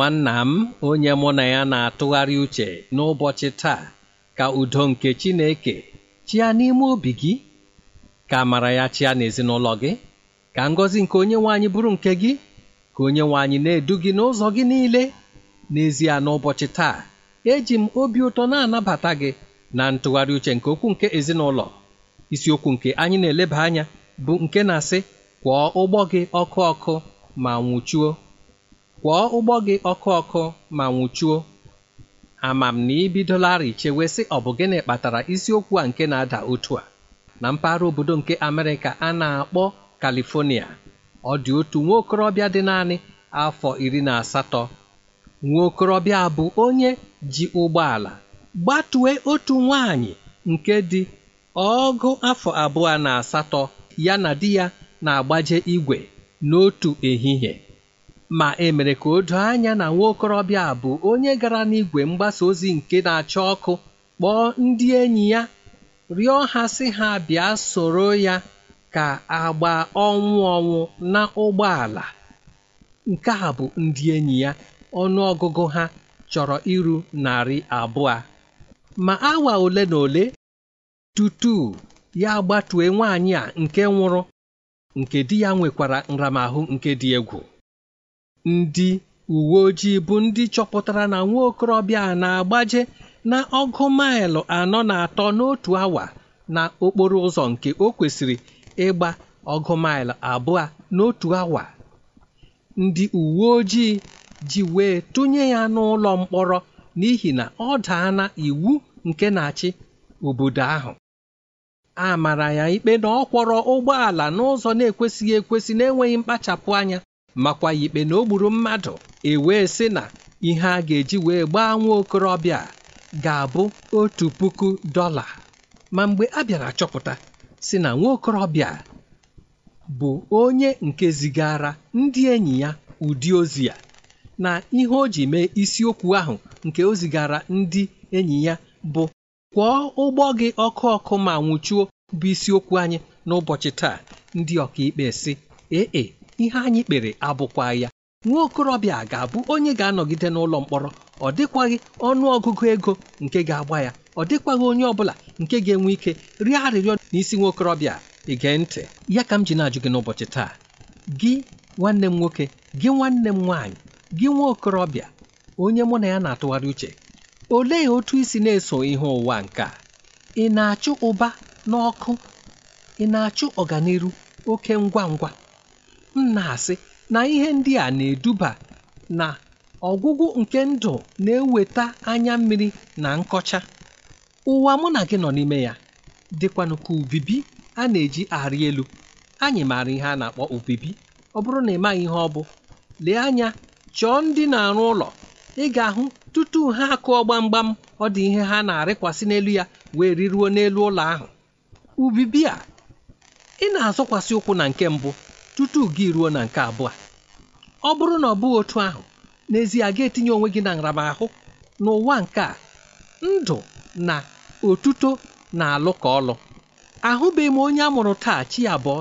nwanna m onye mụ na ya na-atụgharị uche n'ụbọchị taa ka udo nke Chineke chịa n'ime obi gị ka amara ya chịa n'ezinụlọ gị ka ngọzi nke onye nwaanyị bụrụ nke gị ka onye nwaanyị na-edu gị n'ụzọ gị niile n'ezie n'ụbọchị taa eji m obi ụtọ na-anabata gị na ntụgharị uche nke okwu nke ezinụlọ isiokwu nke anyị na-eleba anya bụ nke na-asị kwọọ ụgbọ gị ọkụ ọkụ ma nwụchuo kwọọ ụgbọ gị ọkụ ọkụ ma nwụchuo amam na ibidolarị chewe sị ọ bụ gịnị kpatara isiokwu a nke na-ada otu a na mpaghara obodo nke Amerịka a na-akpọ Kalifonia ọ dị otu nwa okorobịa dị naanị afọ iri na asatọ nwa okorobịa bụ onye ji ụgbọala gbatue otu nwaanyị nke dị ọgụ afọ abụọ na asatọ ya na di ya na-agbaje igwe n'otu ehihie ma e mere ka o doo anya na nwa bụ onye gara n'igwe mgbasa ozi nke na-acha ọkụ kpọọ ndị enyi ya rịọ ha sị ha bịa soro ya ka agba ọnwụ ọnwụ na ụgbọala nke a bụ ndị enyi ya ọnụ ọgụgụ ha chọrọ iru narị abụọ ma awa ole na ole tutu ya gbatue nwaanyị a nke nwụrụ nke di ya nwekwara nramahụ nke dị egwu ndị uwe ojii bụ ndị chọpụtara na nwa okorobịa a na-agbaje na ọgụ maịlụ anọ na atọ n'otu awa na okporo ụzọ nke o kwesịrị ịgba ọgụ maịlụ abụọ n'otu awa ndị uwe ojii ji wee tụnye ya n'ụlọ mkpọrọ n'ihi na ọ daana iwu nke na-achị obodo ahụ a mara ya ikpe na ọ kwọrọ ụgbọala n'ụzọ na-ekwesịghị ekwesị na-enweghị mkpachapụ anya makwa ikpe na o gburu mmadụ ewee sị na ihe a ga-eji wee gbaa nwa okorobịa ga-abụ otu puku dọla ma mgbe a bịara chọpụta si na nwa okorobịa bụ onye nke zigara ndị enyi ya ụdị ozi ya na ihe o ji mee isiokwu ahụ nke o zigara ndị enyi ya bụ kwọọ ụgbọ gị ọkụ ọkụ ma nwụchuo bụ isiokwu anyị n'ụbọchị taa ndị ọkaikpe si ee e, ihe anyị kpere abụkwaghị ya nwa okorobịa ga-abụ onye ga-anọgide n'ụlọ mkpọrọ ọ dịkwaghị ọnụ ọgụgụ ego nke ga-agba ya ọ dịkwaghị onye ọ bụla nke ga-enwe ike rịọ arịrịọ n'isi nwa okorobịa ige ntị ya ka m ji na-ajụ gị n'ụbọchị taa gị nwanne m nwoke gị nwanne m nwaanyị gị nwa okorobịa onye mụ na ya na-atụgharị uche olee otu isi na-eso ihe ụwa nke a ị na-achụ ụba n'ọkụ ị na-achụ ọganiru oke ngwa ngwa m na-asị na ihe ndị a na-eduba na ọgwụgwụ nke ndụ na-eweta anya mmiri na nkọcha ụwa mụ na gị nọ n'ime ya dịkwanụ ka ubibi a na-eji arị elu anyị maara ihe a na-akpọ ubibi ọ bụrụ na ị maghị ihe ọ bụ lee anya chọọ ndị na-arụ ụlọ ị ga-ahụ tutu ha akụọ gbamgbam ọ dị ihe ha na-arịkwasị n'elu ya wee riruo n'elu ụlọ ahụ ubibi a ị na-azọkwasị ụkwụ na nke mbụ tutu gị ruo na nke abụọ ọ bụrụ na ọ bụghị otu ahụ n'ezie ga-etinye onwe gị na nramahụ n'ụwa nke a ndụ na otuto na alụ ka ọlụ ahụbeghị m onye a mụrụ taa chi abụọ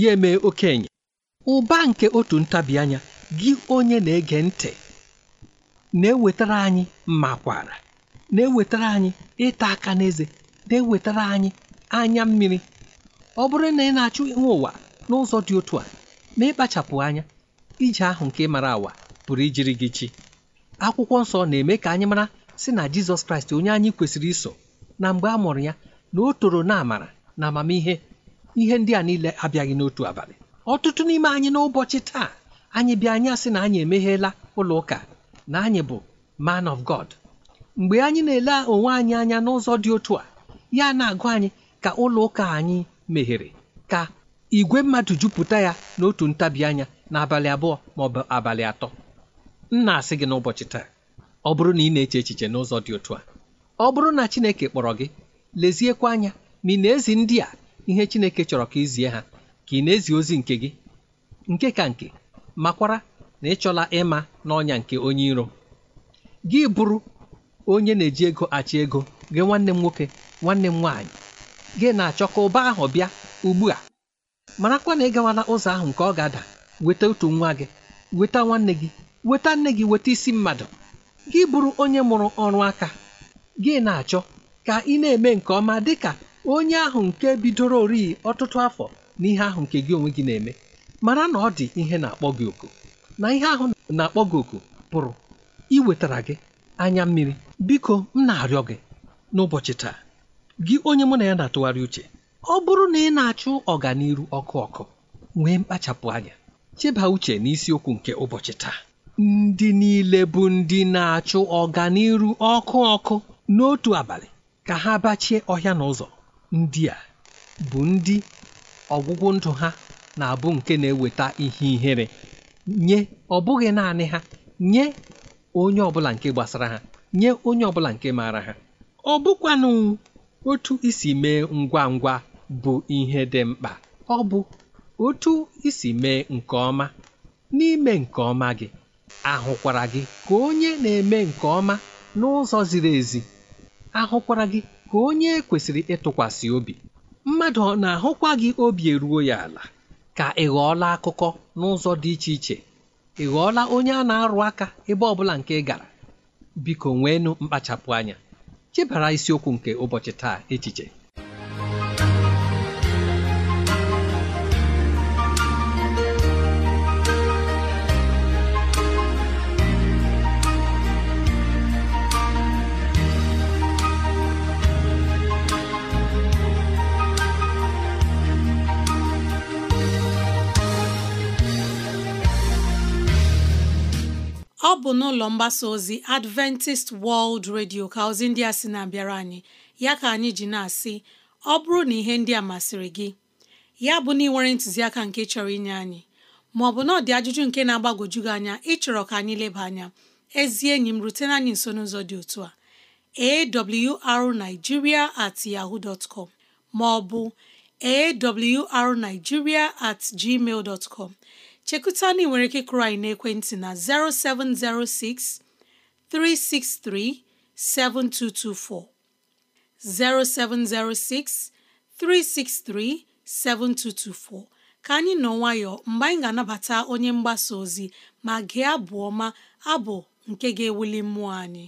ya eme okenye ụba nke otu ntabi anya gị onye na-ege ntị na-ewetara anyị makwara na-ewetara anyị ịta aka n'eze na-ewetara anyị anya mmiri ọ bụrụ na ị na achụ ihe ụwa n'ụzọ dị otu a ma ịkpachapụ anya ije ahụ nke mara awa pụrụ ijiri gị chi akwụkwọ nsọ na-eme ka anyị mara si na jizọs kraịst onye anyị kwesịrị iso na mgbe a mụrụ ya na o toro na amara na amamihe ihe ndị a niile abịaghị n'otu abalị ọtụtụ n'ime anyị n'ụbọchị taa anyị bịa anya sị na anyị emeghela ụlọ ụka na anyị bụ man of God mgbe anyị na-ele onwe anyị anya n'ụzọ dị otu a ya na-agụ anyị ka ụlọ ụka anyị meghere ka igwe mmadụ jupụta ya n'otu ntabi anya n'abalị abụọ ma ọ bụ abalị atọ m na-asị gị n'ụbọchị taa ọ bụrụ na ị na-eche echiche n'ụzọ dị otu a ọ bụrụ na Chineke kpọrọ gị leziekwa anya ma ị na-ezi ndị a ihe Chineke chọrọ ka izie ha ka ị na-ezi ozi nke gị nke ka nke makwara na ịchọla ịma n'ọnya nke onye iro gị bụrụ onye na-eji ego achị ego gị nwanne m nwoke nwanne m nwaanyị gị na-achọ ka ụba ahụ bịa ugbu a marakwa na ịgawa na ụzọ ahụ nke ọ ga-ada weta otu nwa gị weta nwanne gị weta nne gị weta isi mmadụ gị bụrụ onye mụrụ ọrụ aka gị na-achọ ka ị na-eme nke ọma dị ka onye ahụ nke bidoro oriyi ọtụtụ afọ na ihe ahụ nke gị onwe gị na-eme mara na ọ dị ihe na-akpọ gị oku na ihe ahụ na-akpọ gị oku pụrụ iwetara gị anya mmiri biko m na-arịọ gị n'ụbọchị taa gị onye mụ na ya na-atụgharị uche ọ bụrụ na ị na-achụ ọganiru ọkụ ọkụ nwee mkpachapụ anya cheba uche n'isiokwu nke ụbọchị taa ndị niile bụ ndị na-achụ ọganiru ọkụ ọkụ n'otu abalị ka ha bachie ọhịa na ụzọ ndị a bụ ndị ọgwụgwụ ndụ ha na-abụ nke na-eweta ihe ihere nye ọ bụghị naanị ha nye onye ọbụla nke gbasara ha nye onye ọbụla nke maara ha ọ bụkwanụ otu isi mee ngwa ngwa bụ ihe dị mkpa ọ bụ otu isi mee nke ọma n'ime nke ọma gị ahụkwara gị ka onye na-eme nke ọma n'ụzọ ziri ezi ahụkwara gị ka onye kwesịrị ịtụkwasị obi mmadụ na-ahụkwa gị obi eruo ya ala ka ị ghọọla akụkọ n'ụzọ dị iche iche ị ghọọla onye a na-arụ aka ebe ọ bụla nke ị gara biko nweenụ mkpachapụ anya chebara isiokwu nke ụbọchị taa echiche bụ n'ụlọ mgbasa ozi Adventist World Radio ka ozi ndị a sị na-abịara anyị ya ka anyị ji na-asị ọ bụrụ na ihe ndị a masịrị gị ya bụ na ị nwere ntụziaka nke chọrọ inye anyị ma ọ bụ na ọ dị ajụjụ nke na-agbagwoju gị anya ịchọrọ ka anyị leba anya ezi enyi m rutena anyị nso n'ụzọ dị otu a awrnigeria at yahoo dot com ma ọ bụ awrnigeria at gmail dot com chekụta na nwere ike kụrụ anyị n'ekwentị na 0706 363 7224 0706 363 7224 ka anyị nọ nwayọọ mgbe anyị ga-anabata onye mgbasa ozi ma gị abụ ọma abụ nke ga-ewuli mmụọ anyị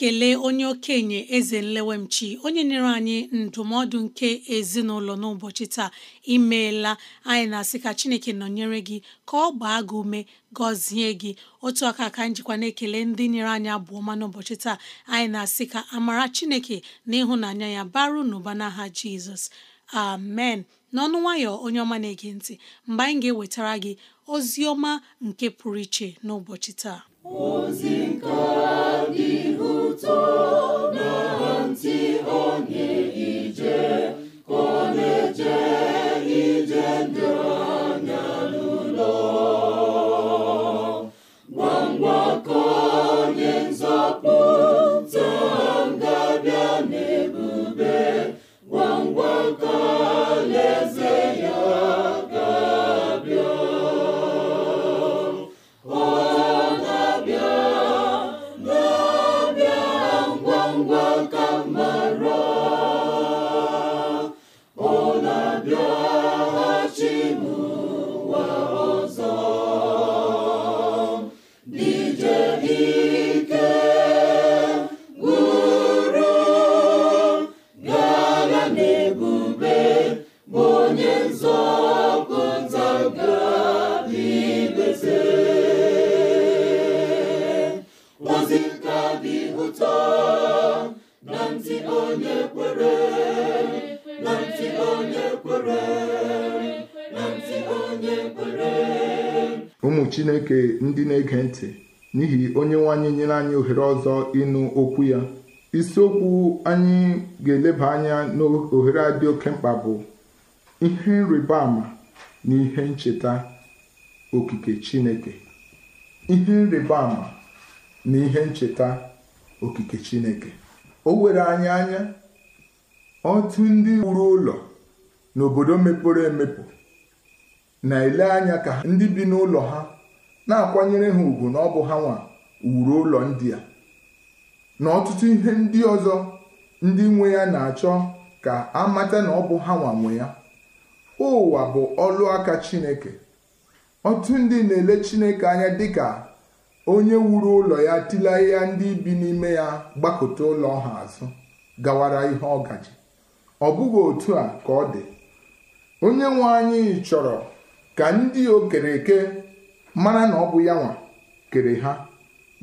na-ekele onye okenye eze nlewemchi onye nyere anyị ndụmọdụ nke ezinụlọ n'ụbọchị taa imeela anyị na-asị ka chineke nọnyere gị ka ọ gbaa gị ume gọzie gị otu aka ka njikwa na-ekele ndị nyere anyị abụ ma n'ụbọchị taa anyị na-asị ka amara chineke na ịhụnanya ya baru n'ụba n'aha jizọs amen n'ọnụ nwayọ onye ọma na-ege ntị mgbe anyị ga-ewetara gị ozi ọma nke pụrụ iche n'ụbọchị taa onzi nka gị lụta na ntị onye ije kode eche. ụmụ chineke ndị na-ege ntị n'ihi onye nwanyị nyere anyị ohere ọzọ ịnụ okwu ya isiokwu anyị ga-eleba anya n'ohere a dị oke mkpa bụ ihe nrịba ama na ihe ncheta okike chineke ihe nrịba ama na ihe ncheta okike chineke o were anyị anya otu ndị wuru ụlọ n'obodo mepere emepe na-ele anya ka ndị bi n'ụlọ ha na-akwanyere ha ugwu na ọ bụ ha nwa wuru ụlọ ndị a na ọtụtụ ihe ndị ọzọ ndị nwe ya na-achọ ka a mata na ọ bụ ha nwa nwe ya ụwa bụ ọlụ aka Chineke ọtụtụ ndị na-ele Chineke anya dịka onye wuru ụlọ ya tila ya ndị bi n'ime ya gbakọta ụlọ ha azụ gawara ihe ọgaji ọ bụghị otu a ka ọ dị onye nwe anyị chọrọ ka ndị o kere eke mara na ọ bụ ya nwa kere ha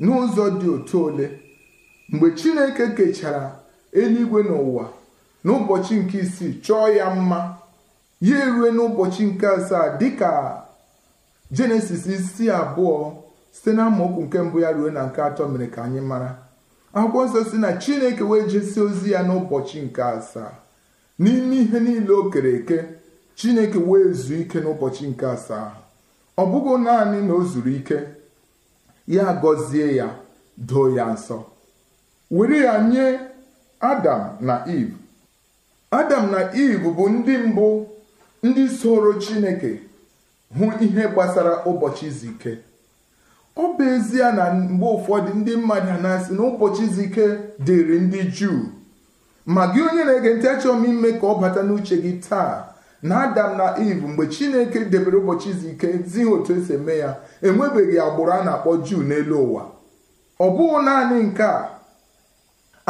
n'ụzọ dị otu ole mgbe Chineke kechara eluigwe n'ụwa ụbọchị nke isii chọọ ya mma ya erue n'ụbọchị nke asaa dịka jenesis isi abụọ site na amaokwu nke mbụ ya ruo na nke atọ mere ka anyị mara akwụkwọ nsọ si na chineke wee jesie ozi ya n'ụbọchị nke asaa n'ime ihe niile o kere eke chineke wee zuo ike n'ụbọchị nke asaa ọ bụghị naanị na o zuru ike ya gọzie ya doo ya nsọ were ya nye adam na iv adam na iv bụ ndị mbụ ndị soro chineke hụ ihe gbasara ụbọchị izu ike ọ bụ ezie na mgbe ụfọdụ ndị mmadụ a na-asị na ụbọchị izu ike dịrị ndị juu ma onye na-ege ntị achọrọ ime ka ọ bata n'uche gị taa na adam na eve mgbe chineke debere ụbọchị izu ike zi ha otu esi eme ya enwebeghị agbụrụ a na-akpọ juu n'elu ụwa ọ bụghị naanị nke a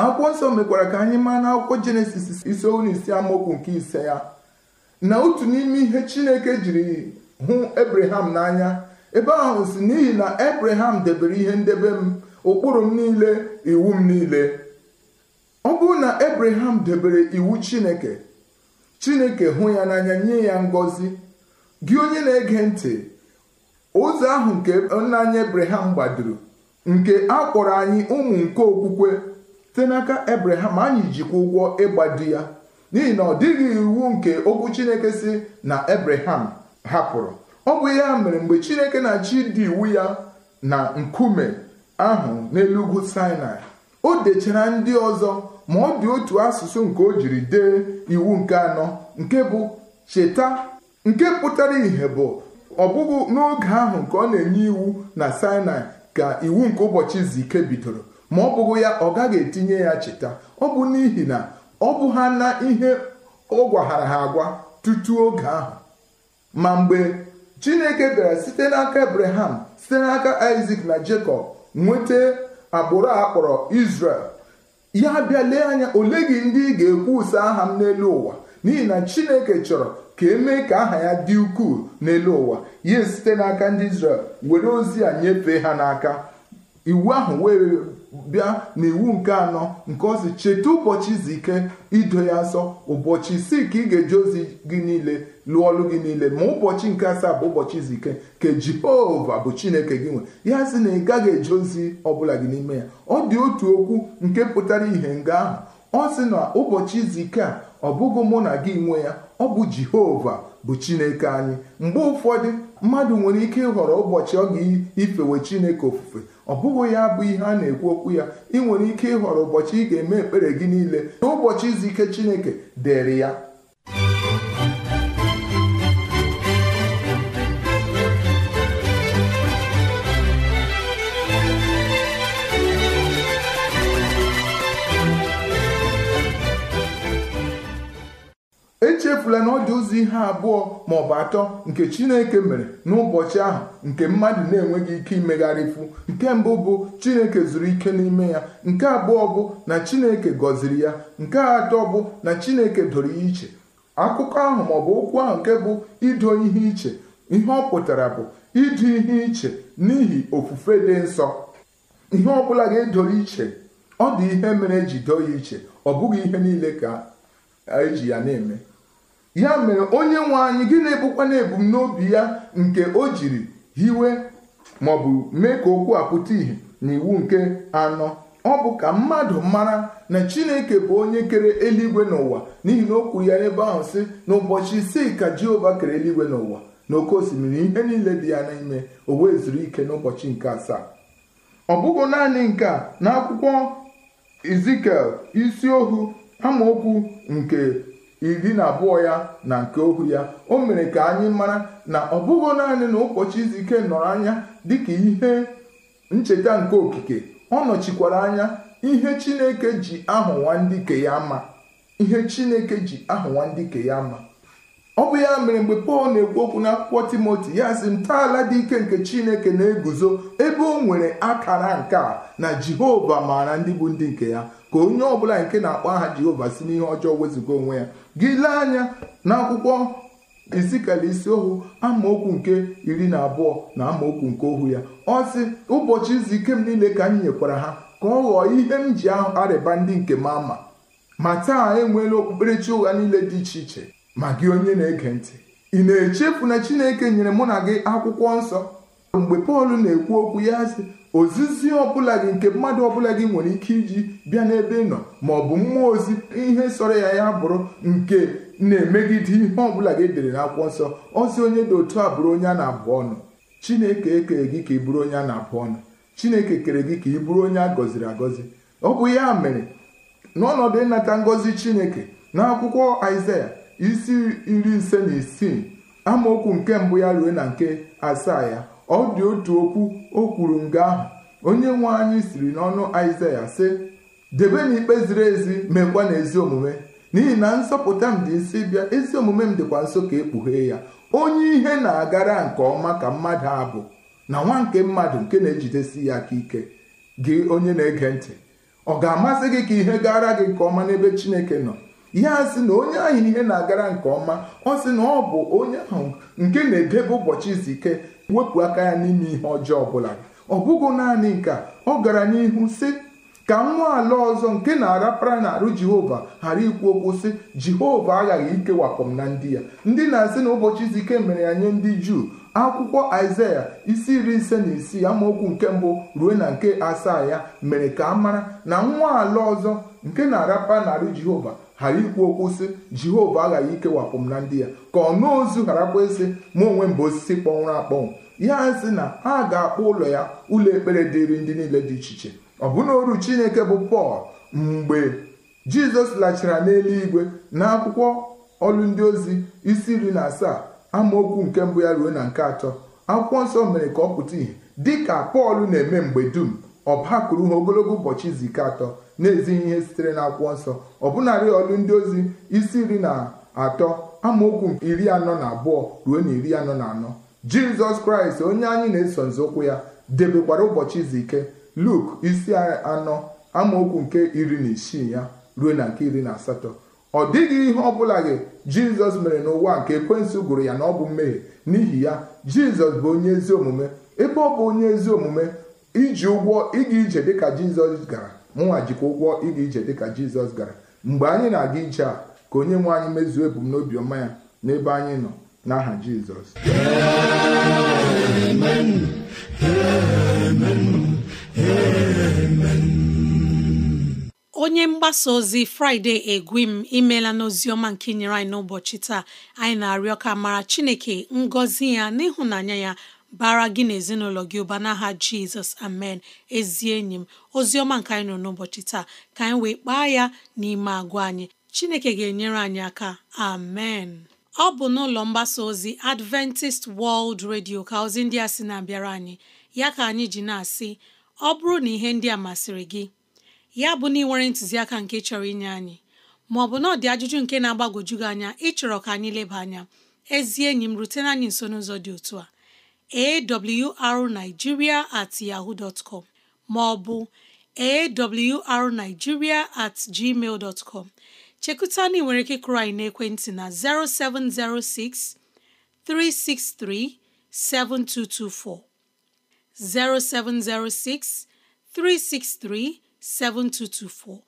akwụkwọ nsọ mekwara ka anyị maa na akwụkwọ jenesis isi isi amaokwu nke ise ya na otu n'ime ihe chineke jiri hụ ebraham n'anya ebe ahụ si n'ihi na ebraham debere ihe ndebe m ụkpụrụ m niile iwu m niile ọ bụrụ na ebraham debere iwu chineke chineke hụ ya n'anya nye ya ngọzi gị onye na-ege ntị ụzọ ahụ nke nna anyị gbadoro nke a kpọrọ anyị ụmụ nke okwukwe site n'aka ebraham anyị jikwa ụgwọ ịgbado ya n'ihi na ọ dịghị iwu nke okwu chineke si na ebraham hapụrụ ọ bụ ya mere mgbe chineke na chidi dị iwu ya na nkume ahụ n'elu ugwu sinai o dechara ndị ọzọ ma ọ dị otu asụsụ nke o jiri dee iwu nke anọ nke bụ cheta nke pụtara ìhè bụ ọ n'oge ahụ nke ọ na-enye iwu na sinai ka iwu nke ụbọchị izu ike bidoro ma ọ bụghị ya ọ gaghị etinye ya cheta ọ bụ n'ihi na ọ bụ ha na ihe ọ gwaghara ha agwa tutu oge ahụ ma mgbe chineke bịara site n'aka ebraham site n'aka isak na jacob nweta agbụrụ a kpọrọ isrel ya abịa lee anya ole gị ndị ị ga-ekwusa aha m n'elu ụwa n'ihi na chineke chọrọ ka emee ka aha ya dị ukwuu n'elu ụwa ya site n'aka ndị israel were ozi a nyefee ha n'aka iwu ahụ wee bịa n'iwu nke anọ nke ozi cheta ụbọchị izu ike ido ya nsọ ụbọchị isii ka ị ga-eji ozi gị niile lụọ ọlụ gị niile ma ụbọchị nke asaa bụ ụbọchị izu ike nke Jehova bụ Chineke gị nwe ya sị na ị gaghị eji ozi ọbụla gị n'ime ya ọ dị otu okwu nke pụtara ihe nga ahụ ọ sị na ụbọchị izu ike a ọ bụghị mụ na gị nwe ya ọ bụ Jehova bụ Chineke anyị mgbe ụfọdụ mmadụ nwere ike ịhọrọ ụbọchị ọ ga ifewe Chineke ofufe ọ bụghị ya bụ ihe a na-ekwu okwu ya ị nwere ike ịhọrọ ụbọchị ị ga-eme ekpere gị niile n'ụbọchị izu ike chineke dịrị ya echefula na ọ dị ụzọ ihe abụọ ma ọ bụ atọ nke chineke mere n'ụbọchị ahụ nke mmadụ na-enweghị ike imegharịfu nke mbụ bụ chineke zuru ike n'ime ya nke abụọ bụ na chineke gọziri ya nke atọ bụ na chineke doro ya iche akụkọ ahụ maọbụ okwu ahụ nke bụ ido ihe iche ihe ọ pụtara bụ ịdị ihe iche n'ihi ofufe dị nsọ ihe ọ bụla ga-edoro iche ọ dị ihe mere eji doo ya iche ọ bụghị ihe niile ka eji ya na-eme ya mere onye nwe anyị gị na-ebukwa na ebumnobi ya nke o jiri hiwe bụ mee ka okwu a pụta ìhè n'iwu nke anọ ọ bụ ka mmadụ mara na chineke bụ onye kere eluigwe n'ụwa n'ihi na o kwuru ya n'ebe ahụ si n'ụbọchị isii ka jehova kere eluigwe n'ụwa na oke osimiri ihe niile dị ya n'ime o wee zuru ike n'ụbọchị nke asaa ọ bụghị naanị nke a na akwụkwọ izikel isi ohu amaokwu nke iri na abụọ ya na nke ohu ya o mere ka anyị mara na ọ bụghị naanị na ụbọchị izu ike nọrọ anya dịka ihe ncheta nke okike ọ nọchikwara anya ihe Chineke ji ahụ nwandike ya mma ihe Chineke ji ahụ nwandike ya mma ọ bụ ya mere mgbe Pọl na-ekwu okwu n'akwụkwọ Timoti ya sị ntọala dị ike nke Chineke na-eguzo ebe o nwere akara nke a na Jehova maara ndị bụ ndị nke ya ka onye ọbụla nke na-akpọ aha Jehova si n'ihe ọjọọ wezụga onwe ya gị lee anya n'akwụkwọ isikala isi ohu amaokwu nke iri na abụọ na amaokwu nke ohu ya ọ sị ụbọchị izu ike m niile ka m nyekwara ha ka ọ ghọọ ihe m ji arịba ndị nke m ama ma taa enweela okpukperechi ụgha niile dị iche iche ma gị onye na-ege ntị ị na-echefu na chineke nyere mụ na gị akwụkwọ nsọ mgbe pọl na-ekwu okwu ya sị ozizi ọbụla gị nke mmadụ ọbụla gị nwere ike iji bịa n'ebe ị nọ ma ọ bụ mmụọ ozi ihe sọrọ ya ya bụrụ nke na-emegide ihe ọbụla gị dere akwụkwọ nsọ ozi onye dị otu a bụrụ onye a na-abụ ọnụ chineke ekere gị ka ị bụrụ onye a na-abụ ọnụ chineke kere gị ka ị bụrụ onye a gọziri agọzi ọ bụ ya mere n'ọnọdụ ịnata ngọzi chineke akwụkwọ aịzaya isi iri ise na isii amaokwu nke mbụ ya ruo na nke asaa ya ọ dị otu okwu o kwuru nga ahụ onye nwe anyị siri n'ọnụ Aịzaya sị debe na ikpe ziri ezi meekwa na ezi omume n'ihi na nsọpụta m dị isi bịa ezi omume m dịkwa nso ka ekpughee ya onye ihe na-agara nke ọma ka mmadụ a bụ na nwa nke mmadụ nke na-ejidesi ya aka ike gị onye na-ege ntị ọ ga-amasị gị ka ihe gara gị nke ọma n'ebe Chineke nọ ya sị na onye ahụ ihe na-agara nke ọma ọ sị na ọ bụ onye ahụ nke na-edebe ụbọchị izu ike wepụ aka ya n'ime ihe ọjọọ ọbụla ọ bụghị naanị nke ọ gara n'ihu sị ka nwa ala ọzọ nke na-arapara n'arụ jehova ghara ikwu okwu sị jehova aghaghị ikewapụ m na ndị ya ndị na-asị na ụbọchị izu ike mere ya nye ndị juu akwụkwọ isaya isi iri ise na isii amaokwu nke mbụ ruo na nke asaa ya mere ka a mara na nwa ala ọzọ nke na-arapa narị jehova ghara ikwu okwu sị jehova aghaghị ikewapụ m na ndị ya ka ọ ọnụ ozu gharakwa ịsị mụ onwe m bụ osisi kpọnwụrụ akpọnwụ ya sị na a ga-akpọ ụlọ ya ụlọ ekpere dịrị ndị niile dị iche iche ọ bụna oru chineke bụ pọl mgbe jizọs lachara n'eluigwe na akwụkwọ ọlụ ndị ozi isi iri na asaa amaokwu nke mbụ ya ruo na nke atọ akwụkwọ nsọ mere ka ọ pụta ìhè dị ka pọl na-eme mgbe dum ọ bakwuru ha ogologo ụbọchị izu ike atọ na-ezighị ihe sitere na akwụkwọ nsọ ọbụnarị ọlụ ndị ozi isi iri na atọ amaokwu iri anọ na abụọ ruo na iri anọ na anọ jizọs kraịst onye anyị na-eso nzọụkwụ ya debekwara ụbọchị izu ike luk isi anọ amaokwu nke iri na isii ya ruo na nke iri na asatọ ọ dịghị ihe bụla gị jizọs mere n'ụwa nke ekwensu gụrụ ya na ọ bụ mmehie n'ihi ya jizọs bụ onye ezi omume ebe ọ bụ onye ezi omume iji ụgwọ ịga ije dịka jizọs gara mụnwa jikwa ụgwọ ịga ije dịka jizọs gara mgbe anyị na-aga ije a ka onye nwe anyị mezuo ebumnobi ọma ya n'ebe anyị nọ n'aha jizọs onye mgbasa ozi fraịde egwim imela n'oziọma nke inyere anyị n'ụbọchị taa anyị na-arịọ ka mara chineke ngọzi ya n'ịhụnanya ya bara gị na ezinụlọ gị ụba n'aha jizọs amen ezi enyi m ozi ọma nke anyị nọ n'ụbọchị taa ka anyị wee kpaa ya n'ime agwa anyị chineke ga-enyere anyị aka amen ọ bụ n'ụlọ mgbasa ozi adventist world radio ka ozi ndị a sị na-abịara anyị ya ka anyị ji na-asị ọ bụrụ na ihe ndị a masịrị gị ya bụ na ị nwere ntụziaka nke chọrọ inye anyị maọbụ na ọ dị ajụjụ nke na-agbagwoju gị anya ịchọrọ ka anyị leba anya ezi enyi m rutena anyị nso n'ụzọ dị otu a awrnigeria at yahoo dot com ma ọ bụ awrnigeria at gmail dot com chekụta ị nwere ike kụrụ anyị n'ekwentị na 0706 363 7224 0706 363 7224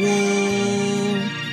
woo!